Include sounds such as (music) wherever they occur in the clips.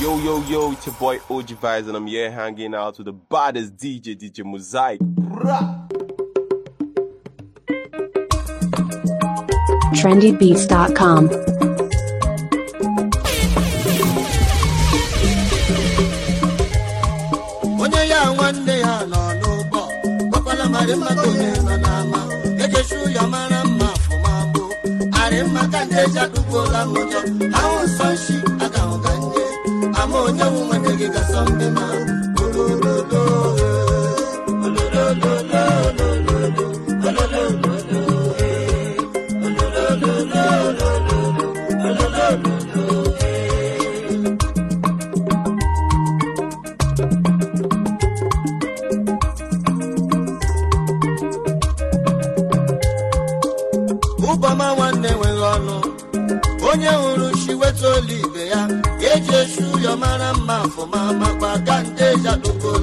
Yo, yo, yo, it's boy OG Vibes, and I'm here hanging out with the baddest DJ, DJ Mosaic. Bruh. TrendyBeats.com. ejesu ya mara mma afụmabụ arịmaka na-eji adụgbuola ụjọ ahụ nsọ nshi ama onye nwụ nwanne gị gasọ ndị ma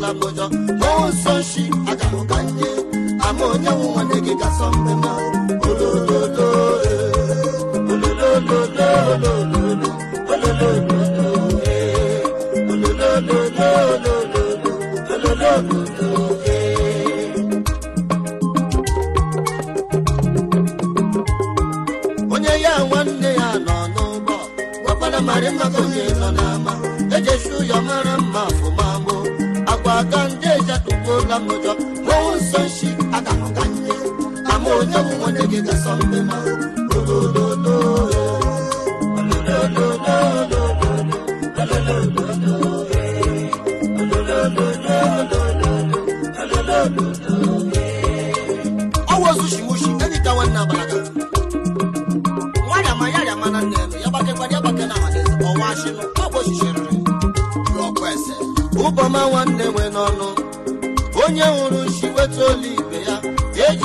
na Abuja n'ụzọ aga a ga-ahụ ka ihe ama onye nwe nwanne gị gị gasọ mbe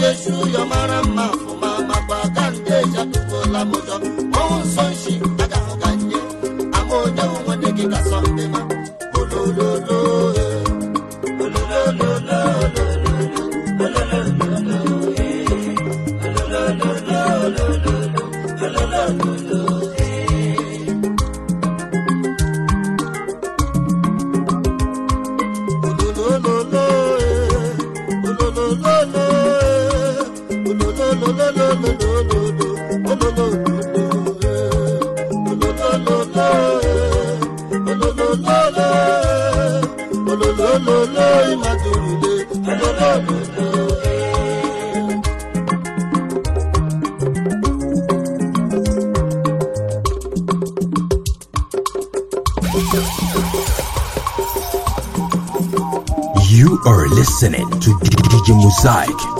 Yesu yọ mara mma You are listening to DJ Mosaic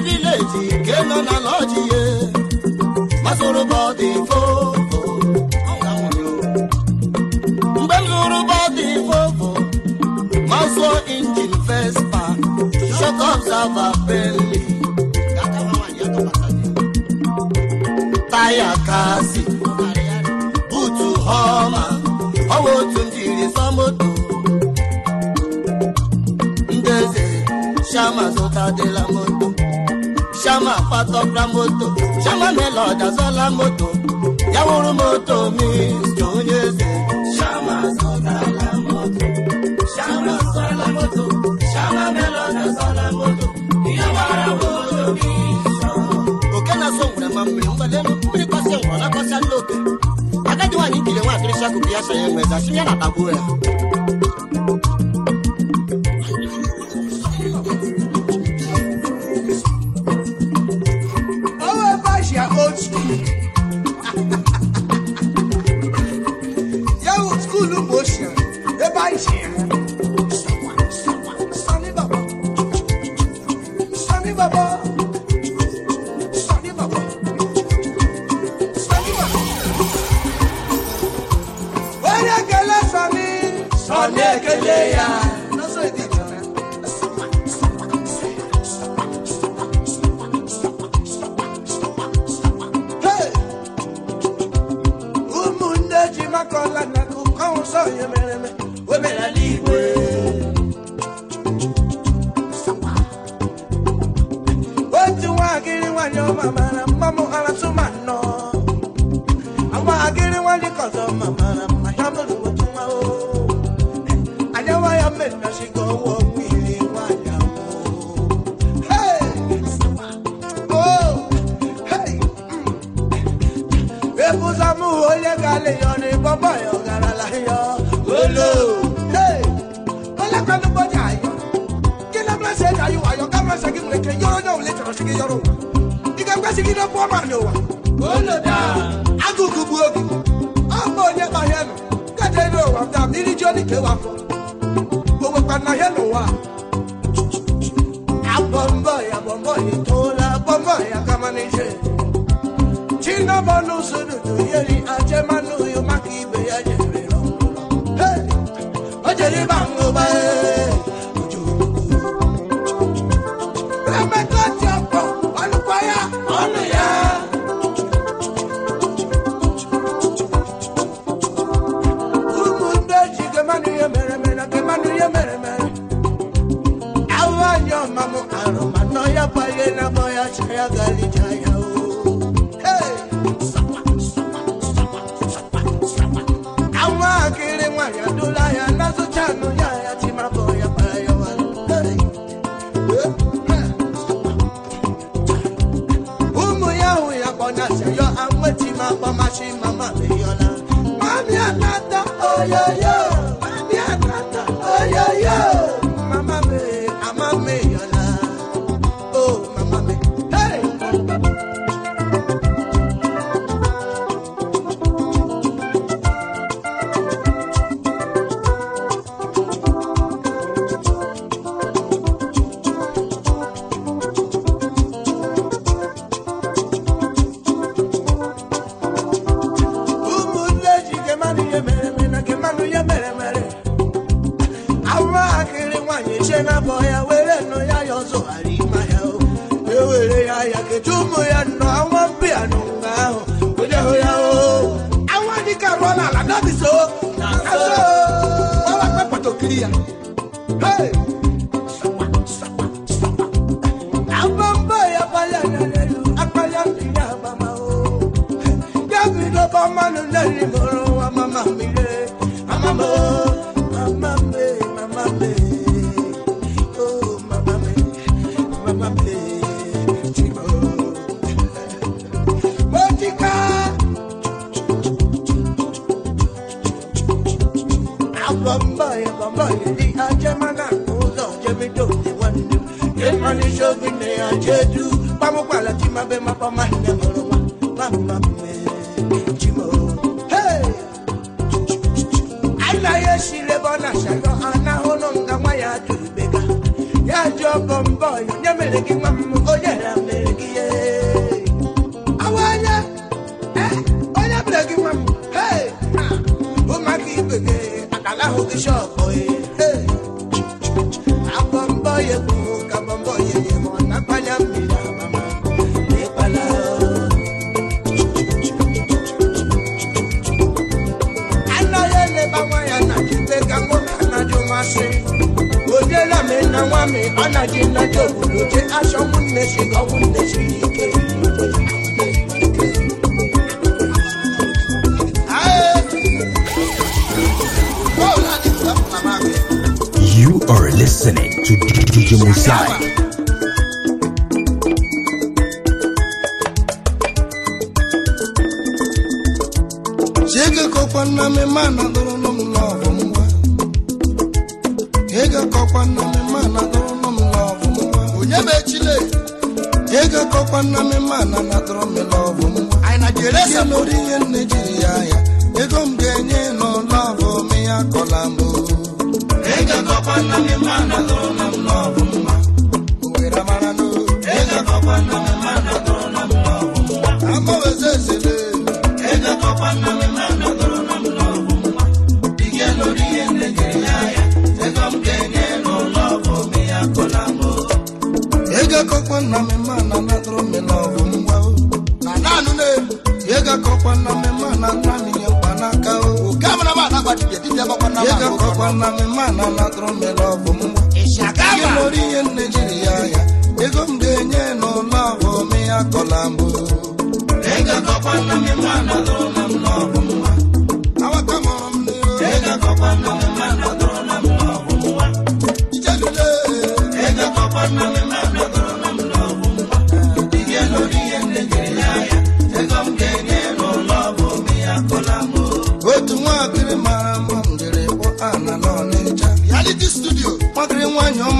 steeti nke nọ na lọji ye. masoro bọdị fofo fofo injin vespa shot taya kasi butu homa ọwa otu njiri samoto ndeze moto chama kwatọkra moto chama melod azọla moto ya wụrụ moto mist onye eze chama azọtala moto chama azọla moto chama melod azọla moto ya gbara moto mist oke na-asọ nwere ma mmiri mgbade mmiri kwasị ngwọ na kwasị ndị oke agadi nwaanyị ikiri nwa akịrịsị akụkụ ya so ya nweza si ya na tagbuo eji maka ọla na akụkọ nsọ ya mere o mere ala teu amor. ọmọ nù lẹ́rìí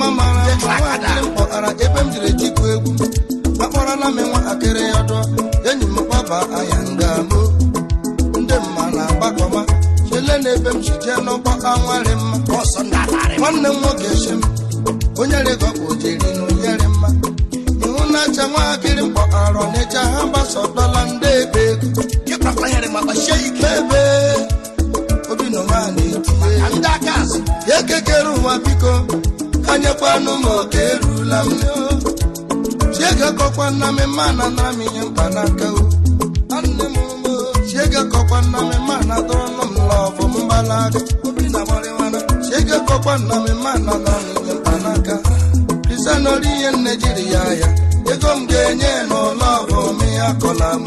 mma mara ebe m jiri tikwu egwu gbakpọrọ na akịrị enyi m gbaba ahịa ndamo ndị mma na-agbakọma na ebe m ji jee anwarị mma m nwoke m onye jiri na mma ihu na acha nwa ha gbasa dọla ndị ebe ego obi nọ etinye ekekere biko enyekwanụ m oke erula m chiege kọkwa nna m mana na m naka o nne m chiege kọkwa nna m mana dọrọnụ m lọvụ mgbalaga chiege kọkwa nna m mana na m naka mkpanaka krisanori ihe nne jiri ya ya ego m ga-enye n'ụlọ ọbụ ya kọla m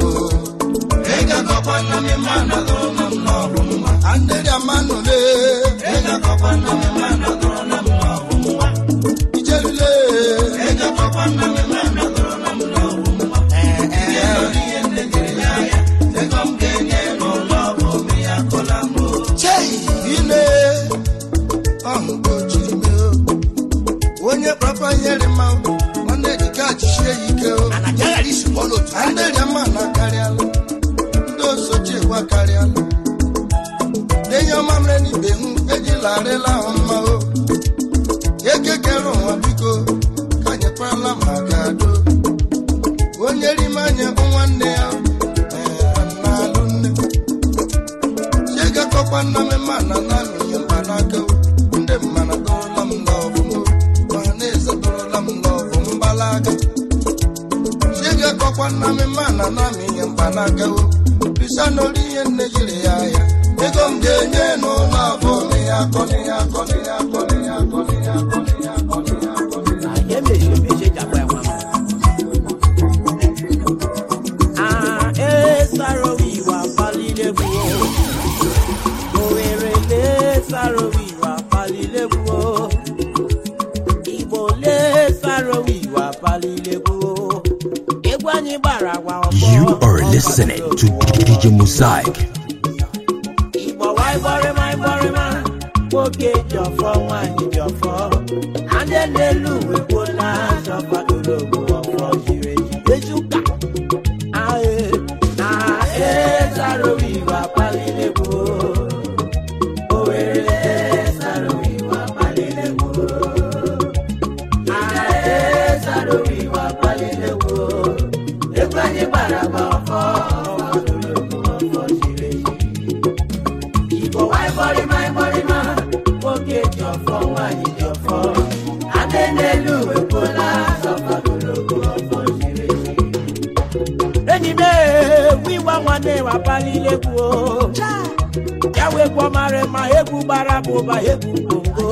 ụba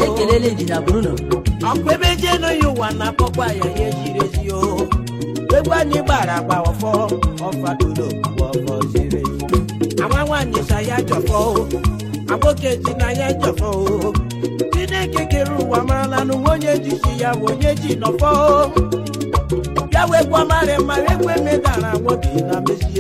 ekelele ndịda na ọkwa ebe jee n'oyi ụwa na-akpọkwa ya ya ejiri ezi o egwu anyị gbara agba ọfọ ọfadolo ọfọ ziri ama nwaanyị sa ya jọfọ agboke ji na ya jọfọ chineke kere ụwa marala n'ụwa onye jisi ya bụ onye ji nọfọ bịa wekwa mara mara ekwe medara nwoke na mesi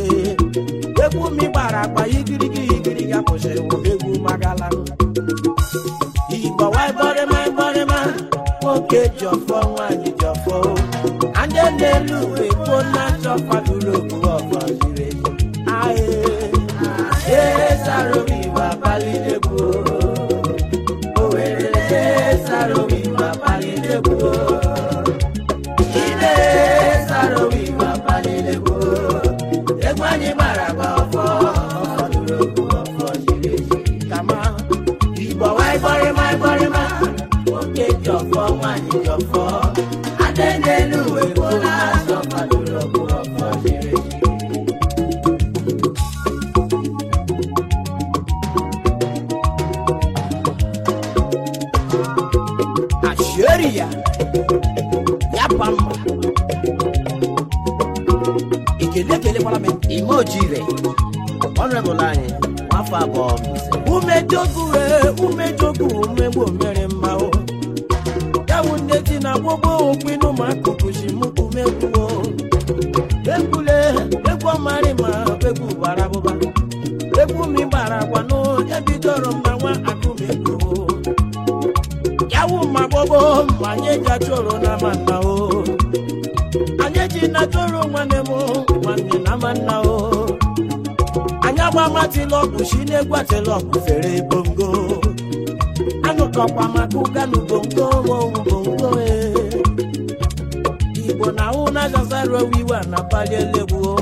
iwe na-apali elegbuo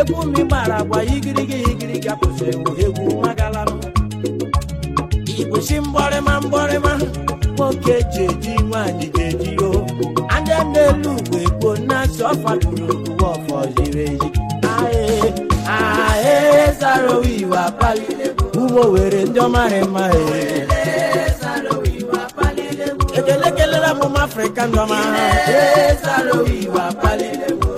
egwu mi gbara agwa igirigi igirigi apụsịrị egwu magalanụ igbochi mgbarịma mgbarịma nwoke ji eji nwaanyị ji eji o anya n'elu ugbo gboo na-asị ọfaduru ndị ọfọ ziri ezi ugbo were ndị ọmarị mma ekele kelere amụma afrịka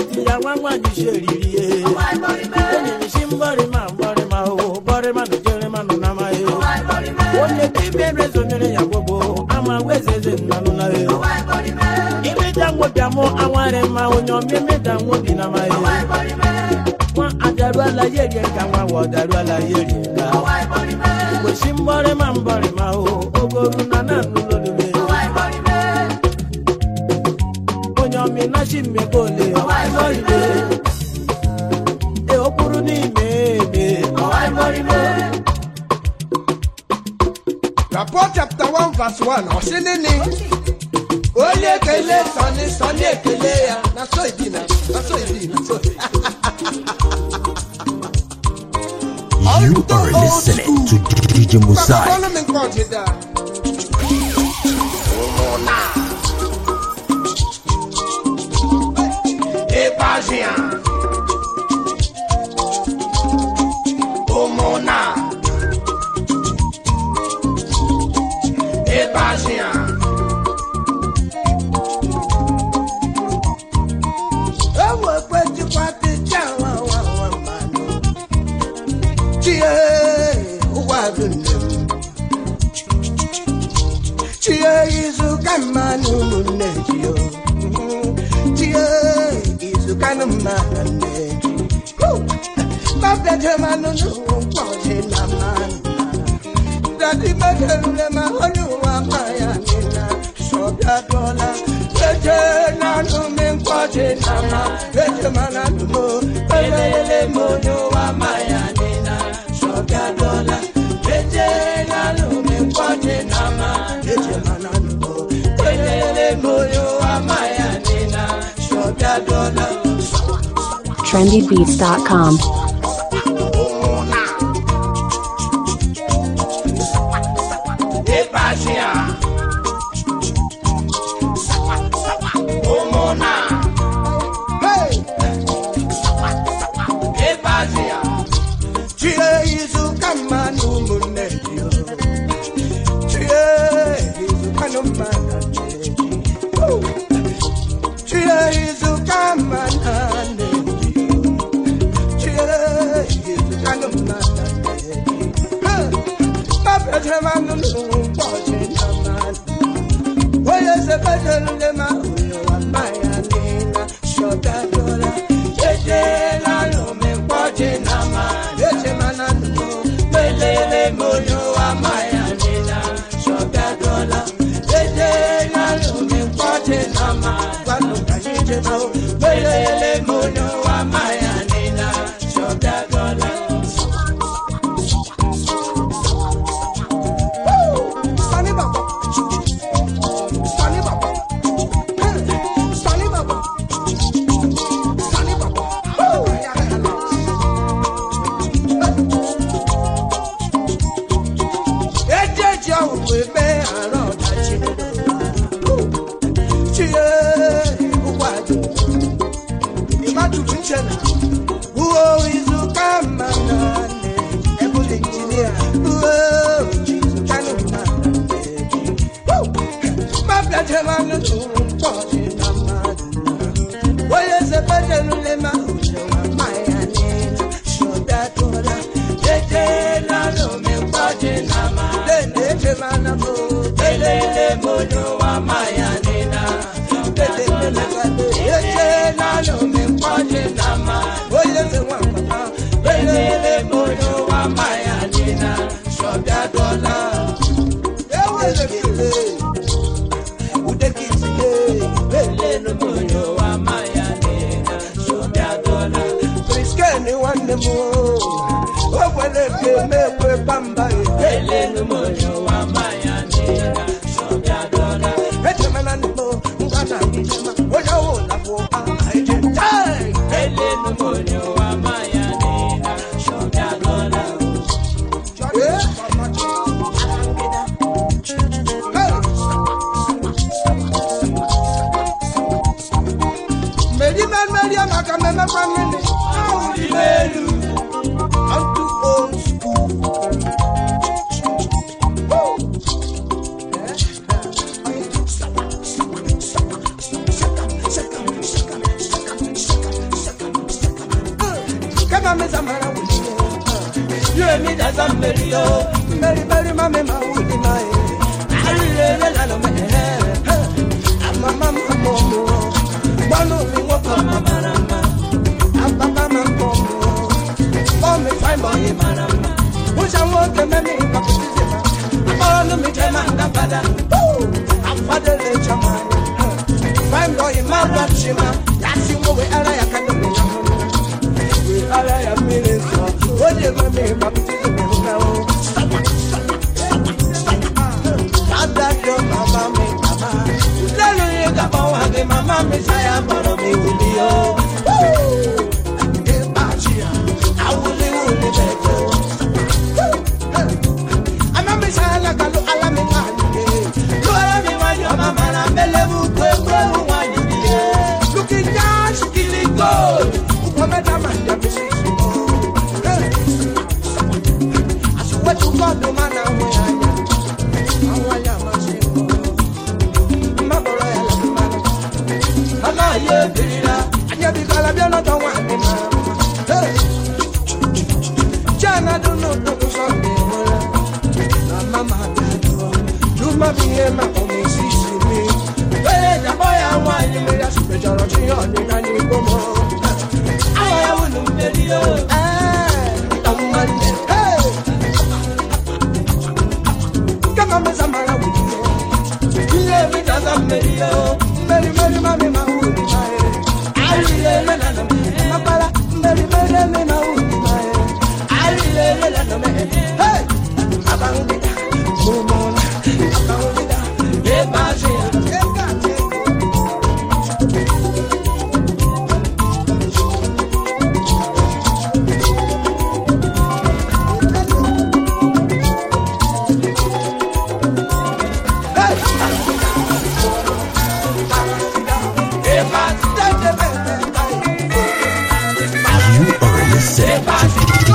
etu ya nwa nwa ji si eriri ihe enyi m si mgbarịma mgbarịma o bọrịma na jerema nọ na amaghị onye dibịa emezonyere ya gbogbo ama weze eze nnanụ na he imeda nwobịa mụ awarị mma onye ọma imeda nwobi na amaghị nwa adaruala ya erie ka nwa wa ọdaruala ya erie ka kwesị mgbarịma mgbarịma o ogo ru na nanụ lolube onye ọma ịnachi mmego na Paul chapter 1 verse 1 ọ sị nini onye ekele sọni sọni ekele ya na so idi na so idi na so You are listening to DJ Mosaic. ya. mma na nne gị mabedemanụ n'ụwa ụkwa dị na mma dadi megerule ma onye ụwa ma ya ọ sọbịadụọla eje nanụ me nkwọ na mma eje mana nụmo ma onye ụwa ma trendybeats.com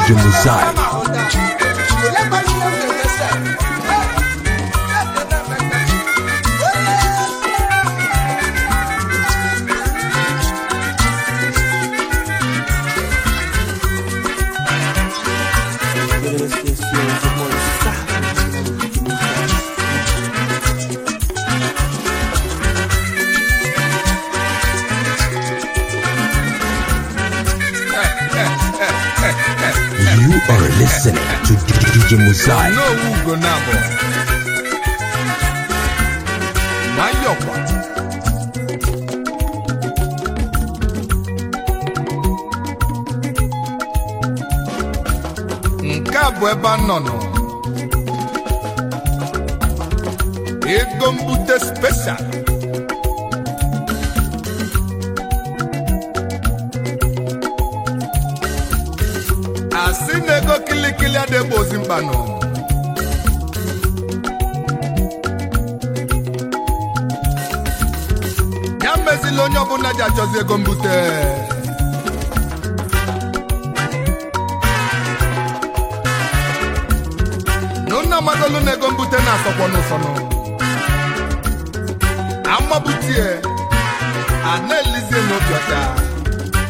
genocide. listening to DJ Muzai. No Ugo Nabo. Nke a mbute special. Lebanon. ya mezila onye ọbụla ji achọzi ego mbute nna amadolu n'ego mbute na-asọkwọ n'ụsọnụ amabutie a na-elizie n'obi ọcha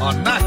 ọ na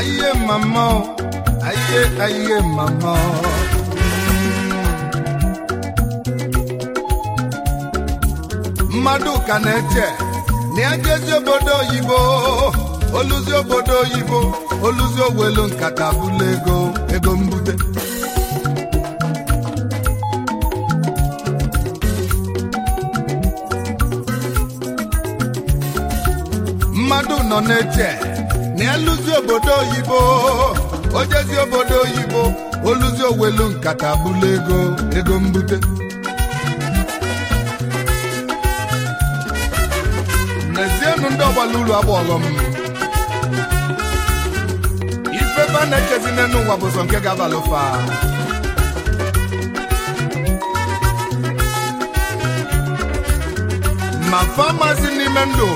ayé màmá o mmadụ ka obodo oyibo oluzi obodo oluzi owelu nkata bụla ego ego mbute mmadụ nọ na-eche na obodo oyibo ojezi obodo oyibo oluzi owelu nkata bụla ego ego mbute n'ezienụ ndị ọgbala uru agbalọ m ifebe a na-ekezi n'elu ụwa bụ sọ nke ga-abalụfa ma famasi n'ime ndụ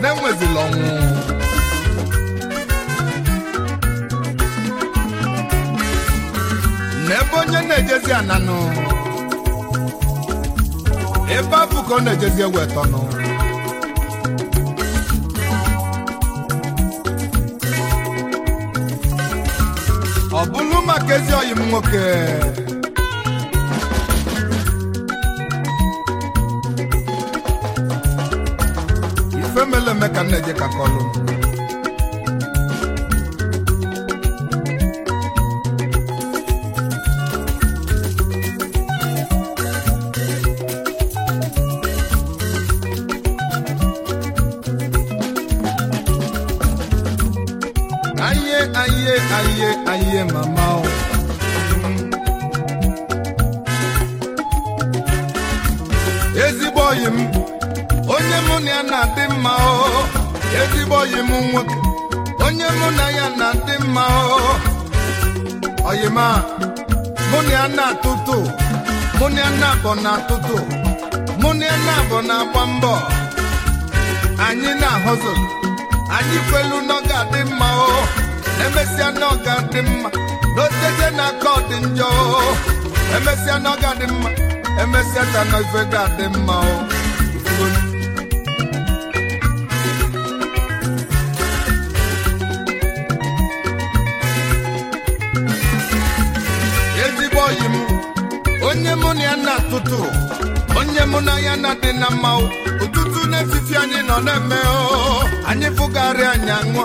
na-enwezila ọnwụ n'ebe onye na-ejezi ananụ ebe afụ ka ọ na-ejezi ewetọnụ ọ bụlụ maka ezi nwoke ife mele eme ka nna eje ka kọlụ nwoke onye mụ na ya na ndị mma oyima mụ na ya na-atụtụ mụ na ya na-abọ na-atụtụ mụ na ya na-abọ na-agba mbọ anyị na-ahụzụ anyị kwelu na ọ ga-adị mma o emesịa na ọ ga mma n'otete na aka ọ dị njọ o emesịa na ọ mma emesịa ka na ife ga-adị mma o na mma ụtụtụ n'etiti anyị nọ na-eme anyị fụgharị anya aṅụọ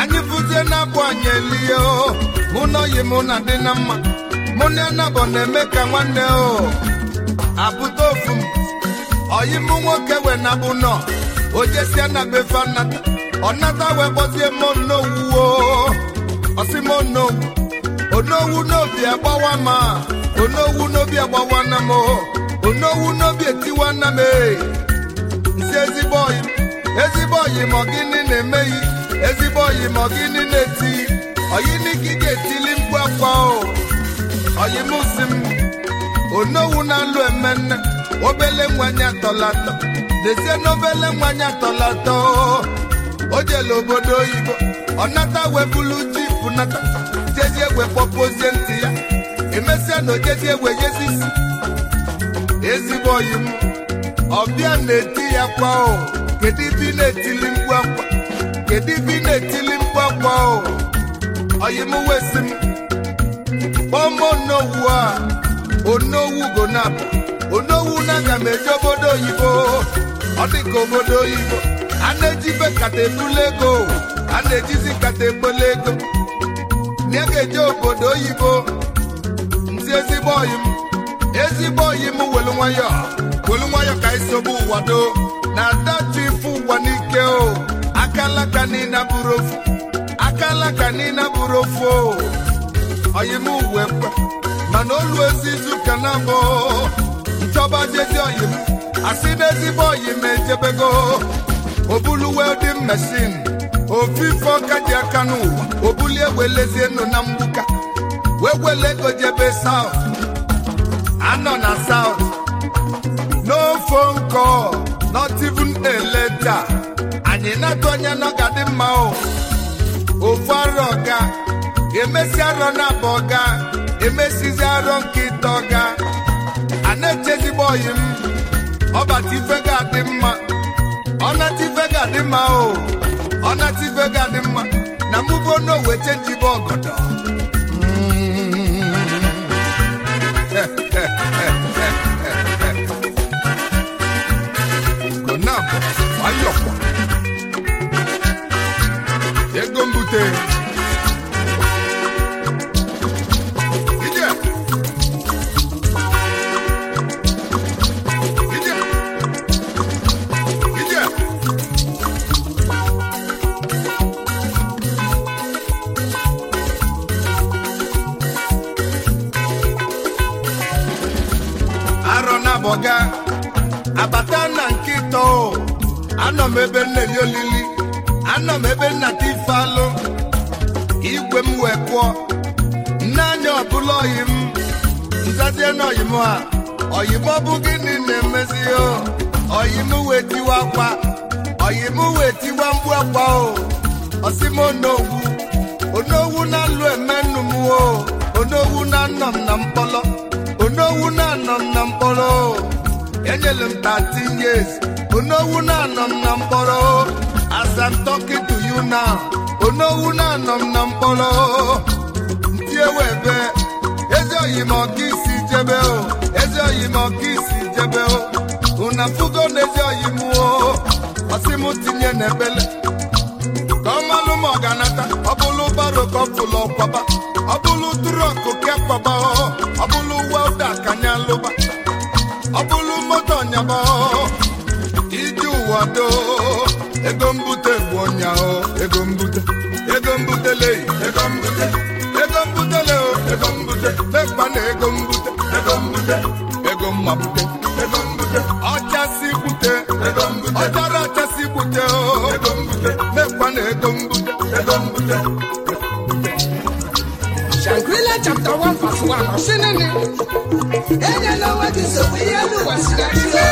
anyị fụzie na abụ anyị elie mụ na mụ na dị na mma mụ na anabọ na-eme ka nwanne o abụta ofu m oyi mụ nwoke wee nabụ nọ ojesia na befe nnata ọnata wee gbozie monowu osimoonowu onowu n'obi agbawa ma onowu n'obi agbawa na m onowu n'obi etiwa nna m ee nsi ezigbo oyi ezigbo oyi ma gịnị na-emeghị ezigbo oyi ma gịnị na-etighi oyiniki ga-etili mkpu akwa o oyimusi m onowu na-alụ emenne obele nwanyị atọlatọ dezie n'obele nwanyị atọlatọ o jele obodo oyibo ọ nata webulu ji pụnata jezie egwe kpọpuozie ntị ya emesịa na ojezie egwe jezisi ezigbo yi m ọbịa na-eti ya kwa o kedu ibe na-etili mkpu akwa kedu ibi na-etili mkpu akwa o oyi m wesi m kpọm onowu a onowu go na onowu na aga m obodo oyibo ọ dị ka obodo oyibo a na eji nkata ebula ego a na-ejizi kata egbula ego na ga-eje obodo oyibo nzi ezigbo oyi m ezigbo oyi m welu nwayọ welu nwayọ ka isobu ụwa doo na adatu ife ụwa n'ike o akalaka niile bụrụ ofu akalaka niile bụrụ ofu o oyi m uwe kwe mana olu ezizu ka na abụ nchọba jeje oyi m asị na ezigbo oyi m ejebego obulu welding mesin. ofife ọka ji aka n'ụwa obulie welezie nụ na mgbuka wee wele ego jebe south anọ na south no phone call not even a letter anyị na-atụ n'ọga dị mma o ofu arọ ga emesi arọ na abụọ ga emesizi arọ nke ịtọ ga a na-echezigbo oyi m ọbata ife ga-adị mma ọnata ife ga-adị mma o ọnata ife ga-adị mma na mụbo n'owe chenjibe ọgọdọ ayọkwa ego mbute na-eri olili nọ m ebe nnata ife alụ igwe m wee pụọ nne anya ọbụla oyi m nzazie na oyim a oyim ọ gịnị na-emezi o oyim wee tiwa akwa oyim wee tiwa mgbu akwa o osim onowu onowu na-alụ emenụ m o onowu na-anọ m na onowu na-anọ m na m 13 years onowu na-anọ m na mkpọrọ as I'm talking to you now onowu na-anọ m na mkpọrọ ndị ewebe ezi oyi ọka isi jebe o ezi oyi ma ọka isi jebe o una fugo na ezi oyi m o ọsị m tinye ebele. ka ọ malụ m ọganata ọ bụlụ baro ọ bụlụ ọkwaba ọ bụlụ ke kwaba ọ bụlụ wa kwado ego mbute bụ ọnyahụ ego mbute ego mbutele ego mbute ego mbutele ego mbute mekpa na ego mbute ego mbute ego mmabute ego mbute ọchasị bute ego mbute ọchara ọchasị bute ego mbute mekpa na ego mbute ego mbute chapter 1 verse 1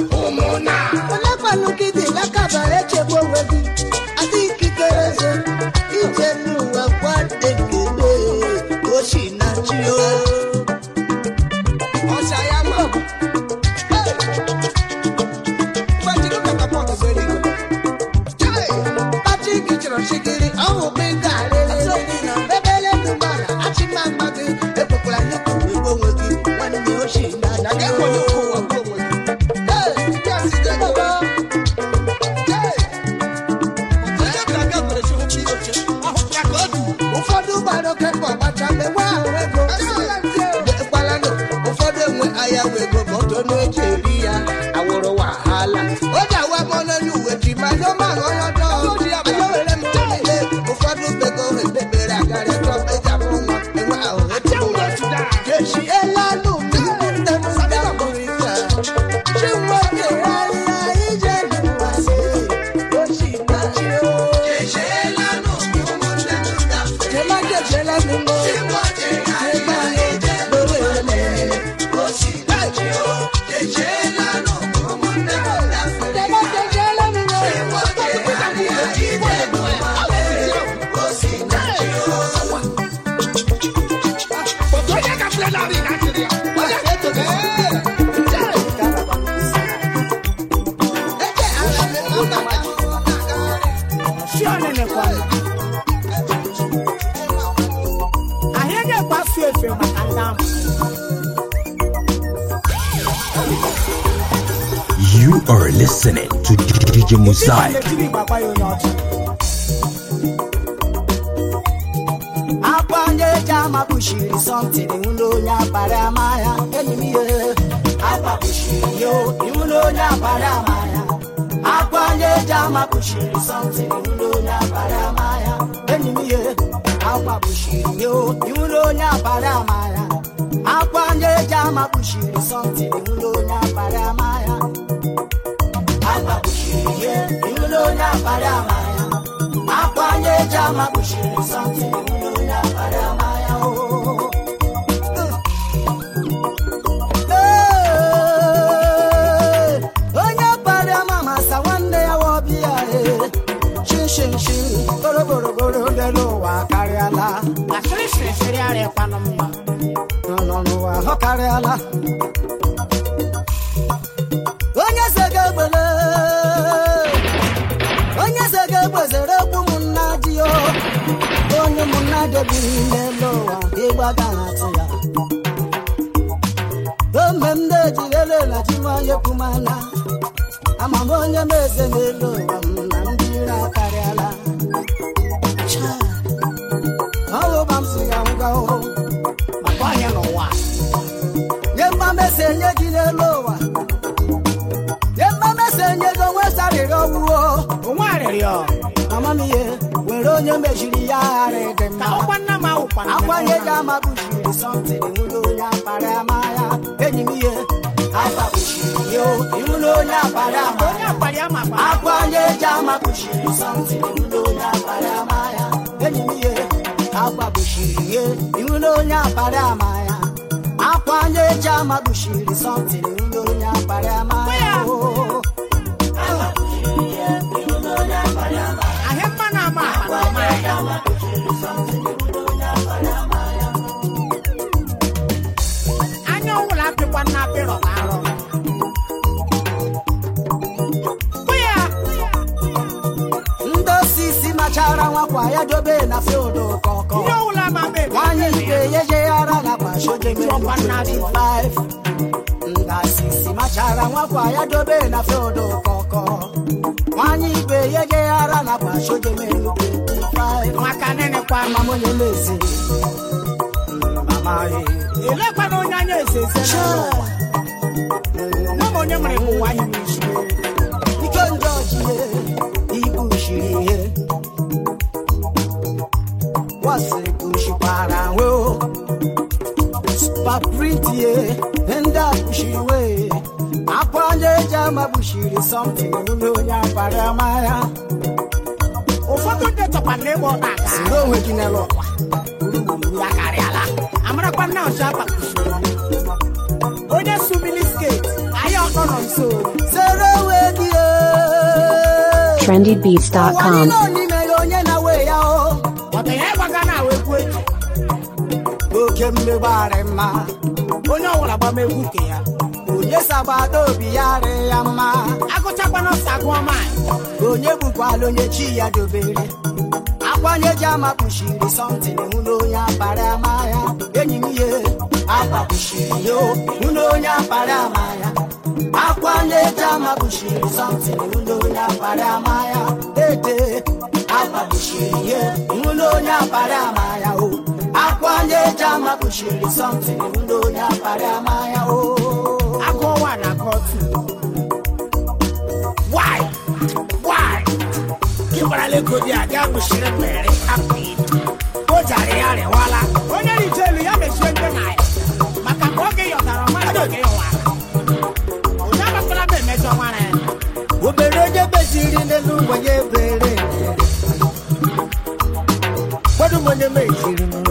ego ma ọtọ tọnụ eji ya wahala DJ Mosaic. Akwa onye eji m kpuchiri Jama Bushiri niile n'ụwa ịgba ga-atụ ya ome m na-ejirele na chi nwanyị pụmana amam onye m eze n'elu ụwa m na ndị ire akarịala ọwụba m si ya ngwa ọhụrụ maka anya n'ụwa nye mma mesi enye gị n'elu ụwa nye mma mesi enye gị onwe sarịrị onwe arịrịọ amamihe were onye mejiri ya gharị onye ji amabuchiri sọntịn nwụrụ onye akpara ya. enyi m ihe akpabuchiri onye akpara ya. akwa onye ji amabuchiri sọntịn nwụrụ onye akpara ya. enyi m ihe akpabuchiri ye ịnwụla onye akpara ya. akwa onye ji amabuchiri sọntịn onye akpara ya. adobe na field kọkọ. Nwanyị Ibe yeje ara na kpasoje mmadụ 25. sisi machara nwakwa e. ya dobe na field kọkọ. Nwanyị Ibe yeje ara na kpasoje mmadụ 25. Nwaka nene kwa mama onye Mama ye. na. Ike kwasị nshikwara nwe supapritie ndị akpụshiwe akwa onye eji amagbuchiri onye ya na ịgba ọta ya onye sumili skate ọkọ nọ nso onwe gị oche mmegbarị mma onye ọwara agbamegwu nke ya onye si agbata obi ya rị ya mma agụchakwana ọsa gụọ maanyị onye gbukwala onye chi ya dobere akwanye ji ama kpuchiri sọntịn mụ na onye akpara ama ya enyi m ihe akpakpuchiri yo mụ na onye akpara ama ya akwanye ji ama kpuchiri sọntịn mụ na apara akpara ama ya ete akpakpuchiri ihe mụ na onye akpara ama ya o akwayeji ama kpuchiri somtin ndo onye akparị amaya o aka ọnwa na aka ọtụ gbaralagodi a ga kpuchiri mmere hapụ o jara ya rịwala onye rije elu ya mechie ndị na ya maka ka oge yọtara ọmara oge yọwa onye agbasara m emejọ nwara ya obere onye beziri n'elu ngwenye bere gbadụ onye mejiri m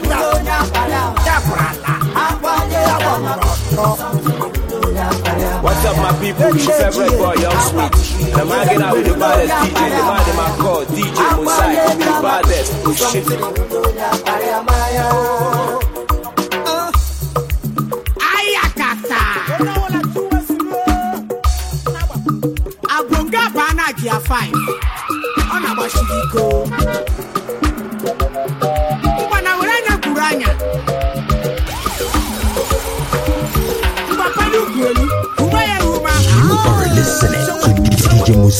people, your favorite boy, Young Sweet. The man get out with the baddest DJ, the man in my call, DJ Mosai, the baddest. Oh shit. Ayakata. Agbonga Bana Gia 5.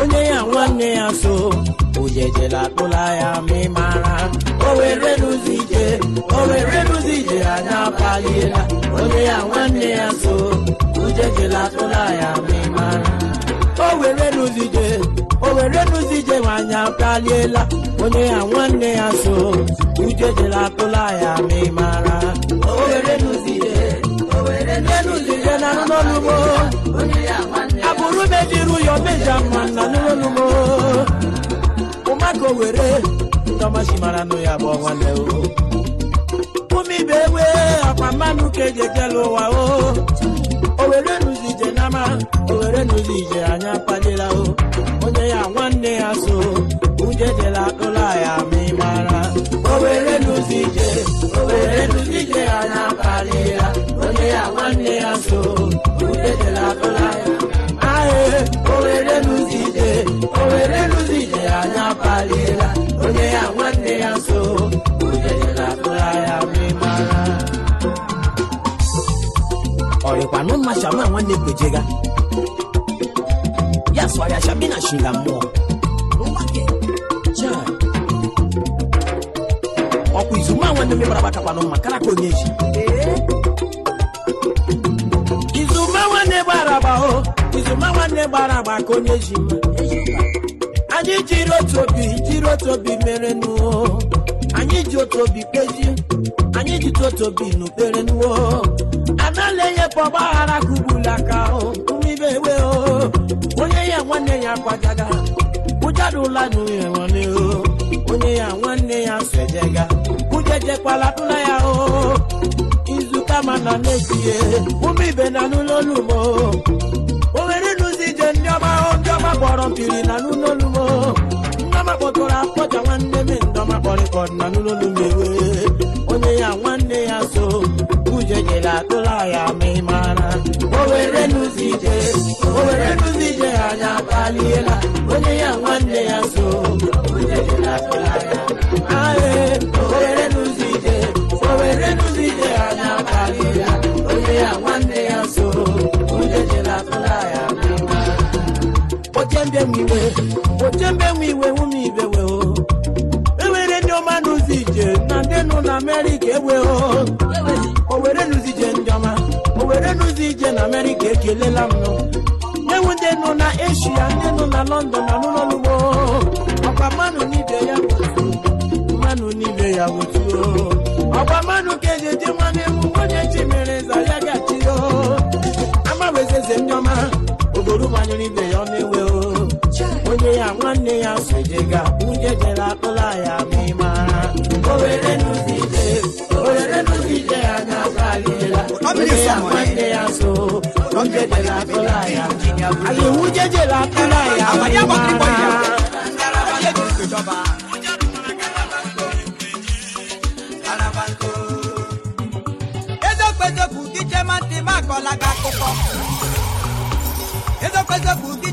onye ya nwanne ya so akpụla ya ma mara o were rụzi ije o were rụzi ije anya apaliela onye ya nwanne ya so ojejela akpụla ya ma ị mara o were rụzi ije o were rụzi ije onye ya nwanne ya so akpụla ya ma ị mara o were rụzi ije o were rụzi na onye ya bụrụ na ejiru ya omeja mma na n'elu were owere ndọmasị mara nụ ya bụ nwanne ụmụ ibe egbe akpa mmanụ ka eji ekele ụwa o owere nụzi ije n'ama owere nụzi ije anya kpalila o onye ya nwanne ya so uje jela ụlọ ya ma ị mara owere nụzi ije owere nụzi ije anya kpalila onye ya nwanne ya so were lụzide ya anya paliela onye ya nwanne ya so ojejelapụaya mara ọyịkwanụ mma shama nwanne kwejega ya swara shabina shila mmụọ ọkwa izuma nwanne mmebara agbakakwanụ mma karaka onye ji izuma nwanne gbara agba izuma nwanne gbara agba ka onye ji mma anyị jiri otu obi jiri otu obi mere nuo anyị ji otu obi kpezi anyị ji otu obi n'ubere nuo anala enye bụ ọgbaghara kụgbulu aka mmiri ewe onye ya nwanne ya kwajaga ụjarụla n'uye nwanne onye ya nwanne ya sejega ujejekwala tụla ya o izuka mana na-etie ụmụ ibe na n'ụlọ olumo o nwere nụzi ije ndị ọma ndị ọma kpọrọ mpiri na n'ụlọ maka nwanne m ndọma na n'ụlọlu mewe onye ya nwanne ya so uche nyere atụla ya ma ị mara owere n'ụzọ owere anya kpaliela onye ya nwanne ya so iwe na Amerịka egbe owere nụzije njọma owere nụzi ije na Amerịka ekelela m enwe ndị nọ na Eshia ndị nọ na London na n'ụlọugbo ọkwa oh. mmanụ n'ibe ya mmanụ n'ibe ya otuo oh. ọkwa mmanụ ka eji eje mmanụ ewu onye ji mere nza ya gachiyo oh. ama wezeze njọma obodo manyụrụ ibe ya ọ na-ewu nwunye ya nwanne ya sojega nwunye jere akpụla ya ma ị ya nwunye ya nwanne ya jere akpụla ya anyị nwunye jere akpụla ya ma ị mara ezokpezokwu dije makọla gị akụkọ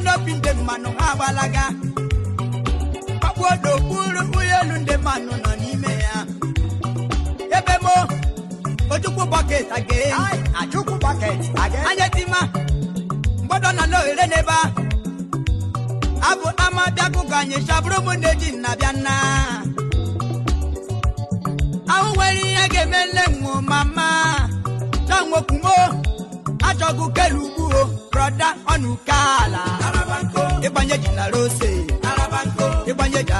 mmanụ obi ndị mmanụ ha agbalaga ọkpụodokpuru elu ndị mmanụ nọ n'ime ya ebe mo ojukwu bọket ajukwu bọket anya tima mgbọdọ na na ohere n'ebe a abụ ama bịakụkọ anyị chabụrụ m na-eji nnabịa nna ahụ nwere ihe ga-eme nwụ mama cha nwokwu mo achọghị kelu brọda ọnụkaala ịgbanye ji na rose ịgbanye ji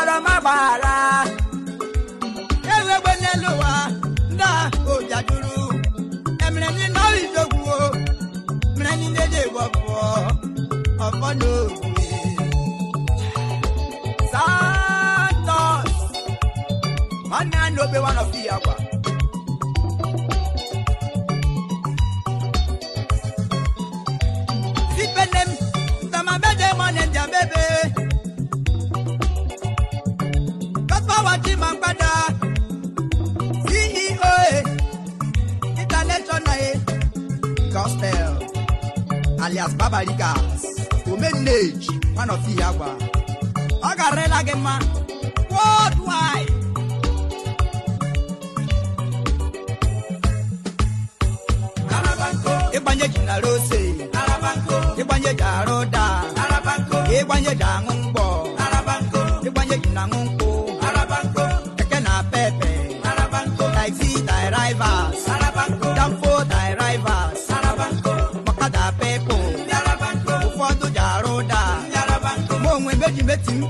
gbara ma gbaghara ewegbe n'elu ụwa ndị a emere ndị nọrọ idogwuo mere ndị ndị dị egwu ọbụọ ọfọ n'obi santos nwanne na obe Gospel alias Babarikas omenneji one of ihe agwa ọ garịla gị mma worldwide ịgbanye ji na rose ịgbanye ji arụ da ịgbanye ji aṅụ mgbọ ịgbanye ji na aṅụ mkpọ. meti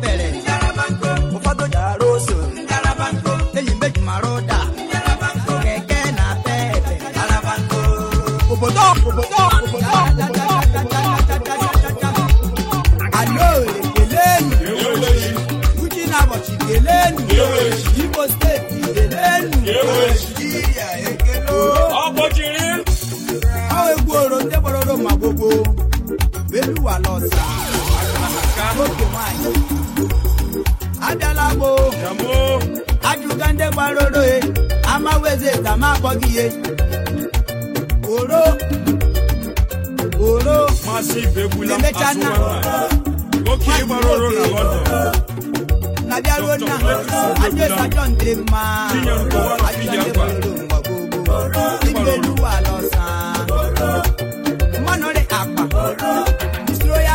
Joseph ka ma akpọ gị ihe oro oro emecha nna na bịaruo nna adịesa John dị mma adịelu ala ọsa mmanụ akpa usoro ya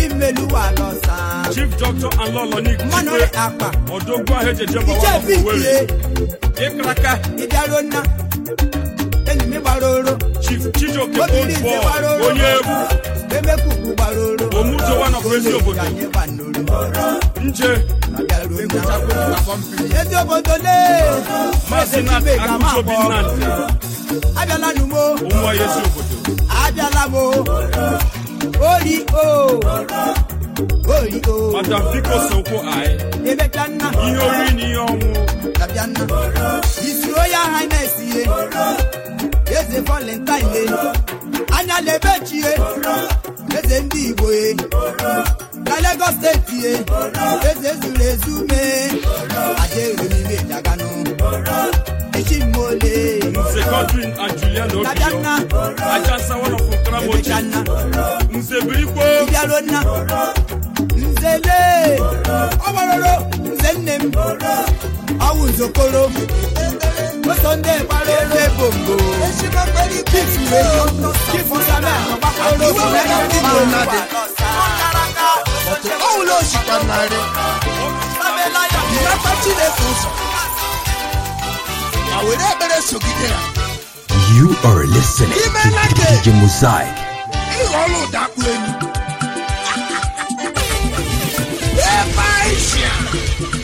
imeluwa lọsa. chief doctor aloloni mmanụrị akpa ọdọgba ejeje bawa ọkụwere ịkaraka ịdarona gbaroro chief chijioke old onye egwu emekuku gbaroro omujo one of ezi obodo nje ezi obodo lee maazị na akụjobi nnadị ezi obodo abịala Ori O. Oh. Ori oh. O. Madam Biko Sokwo Aye. nna. Ihe oriri na ihe ọnwụ. Dabịa nna. Isuro ya esi. ihe. eze valentine anya lebechie eze ndị igbo na Lagos steeti eze zuru ezu mee ajaeremimejaganu echimole dabiana ebechana ibialona nzele ọgbaroro nze nne m ọwụ nzokoro Sunday gbara ọwụla osikwa narị. ekpere You are listening to DJ Mosaic. (laughs)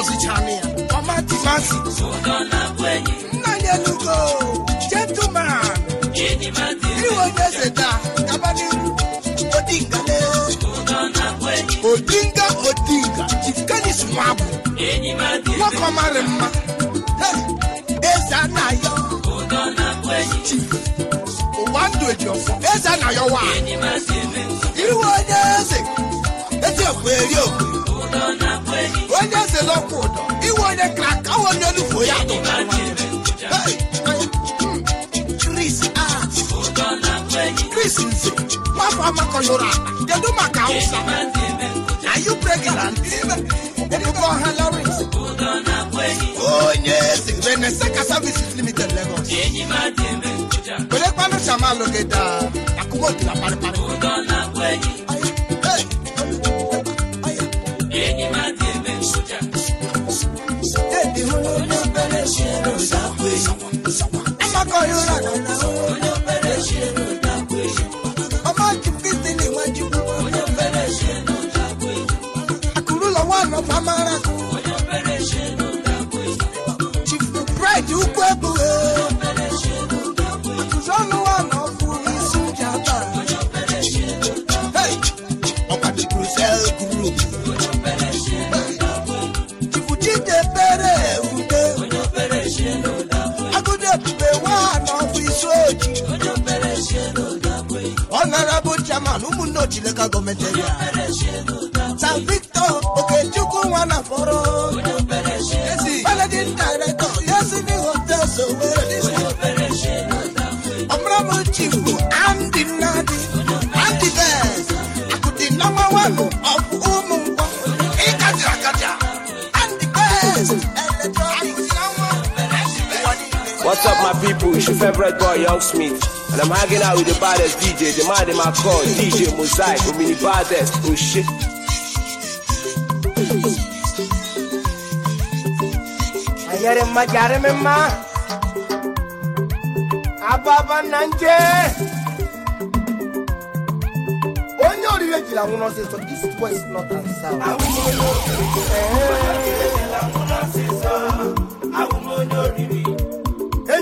gọzichara ya ọmatimazi nna ya elugo gentleman iwe onye zeta gaba n'iru odinga odinga odinga chifkanis nwabụ nwoke ọmarị mma eze anayo chif ụwa ndụ ejiọfọ eze anayo nwa. iwe onye eze eji okwe eri okwe onye eze n'ọkwụ ụdọ iwe onye kraka awa onye olufo ya hmm, Chris nze nwafọ amakọnyụrụ akpa kedu maka awụsa are you pregnant ebube ọha lawrence onye eze reneseka services limited lagos werekwanụ chamalogeda akumotila parịparị onye na chiri favorite boy, Young And I'm hanging out with the baddest DJ, the man in my DJ Mosaic, with mini baddest, oh shit. ababa Onye orire this west north and south.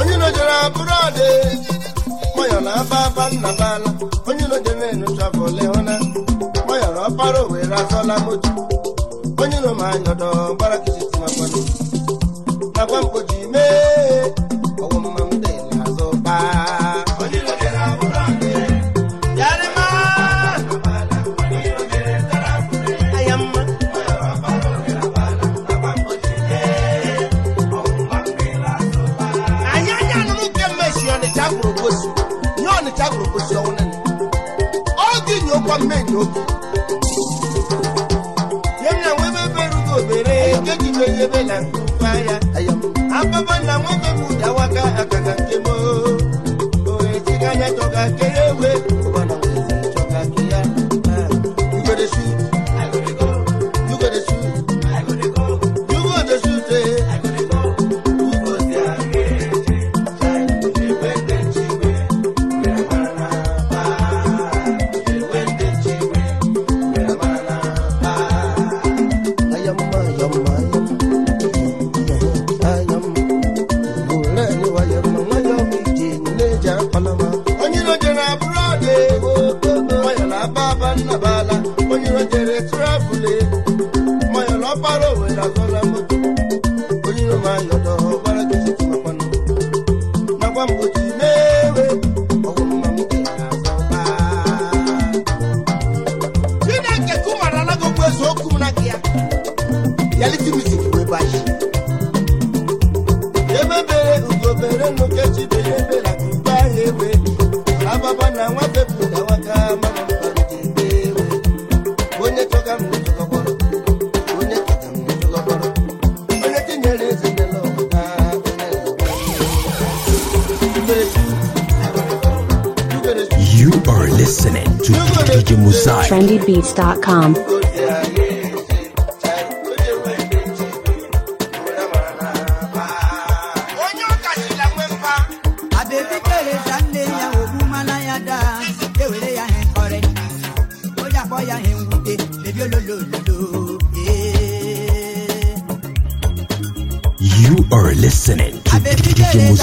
onye nojere abụrụ ọdị gbanyọrọ na aba aba nna n'ala onye nojere enuchabụla ịhụna na ọpara owere azọla moto onye nọ ma anyọdọ gbara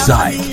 Side.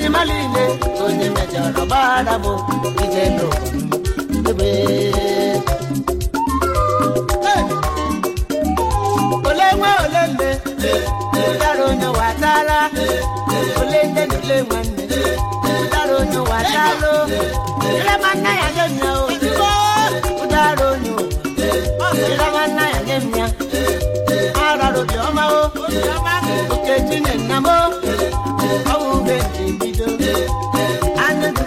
ile m niile onye mejọrọ gbara m ije n'ebe ole nwe ole nne ụdara onye watara ole nne na ole nwanne ụdara onye watara ya nye nna onye o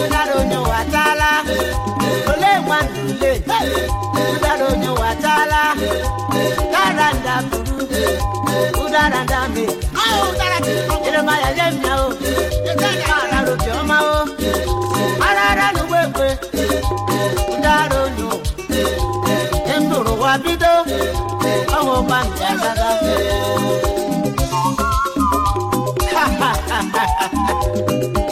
ụdara onye ole nwanne ụdara taala ụdara nda buru ụdara nda me jeremaya nye ya o ụdara onye ụwa bido ọnwụ ụgba ha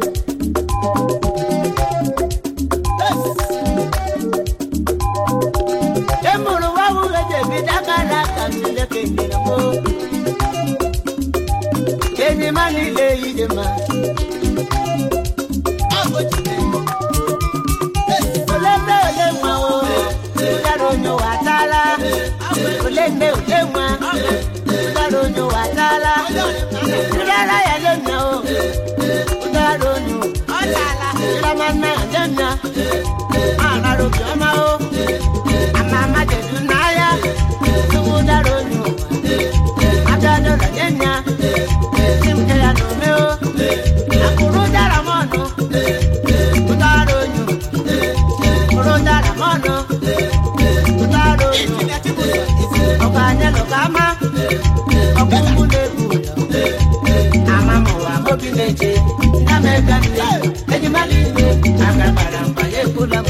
nne ude nwa ụdara onye ụdara ya jenna o ụdara onye ụdara nna ya jenna arara obiọma o chineke na m ebe nne enyi mara mba ya ekwula m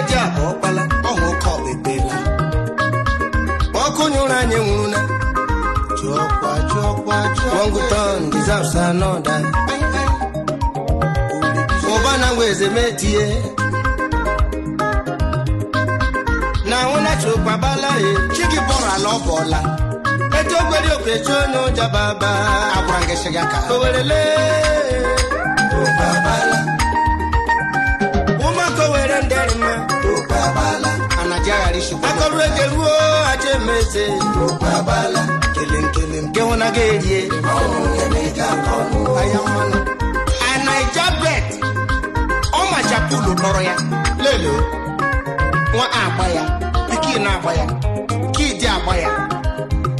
anyị nwụrụla Wonguton deserves another ụbana weze metie na nwụnachukpabala chigi bọrala ọ bọla etu ogbere okechi onye ụjọ baba agwara gị shiga ka owerele akọrụ eke ruo aja emeze kele nke hụ na ga-erie anaija ọmachapulu nọrọ ya lele nwa agba ya piki na-agba ya kidi agba ya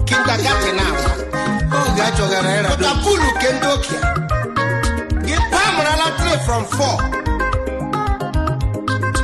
kintakati na-agba oge achọgara ịra pụtapulu ke gị from 4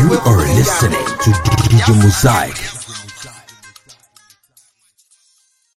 You are listening to DJ Mosaic.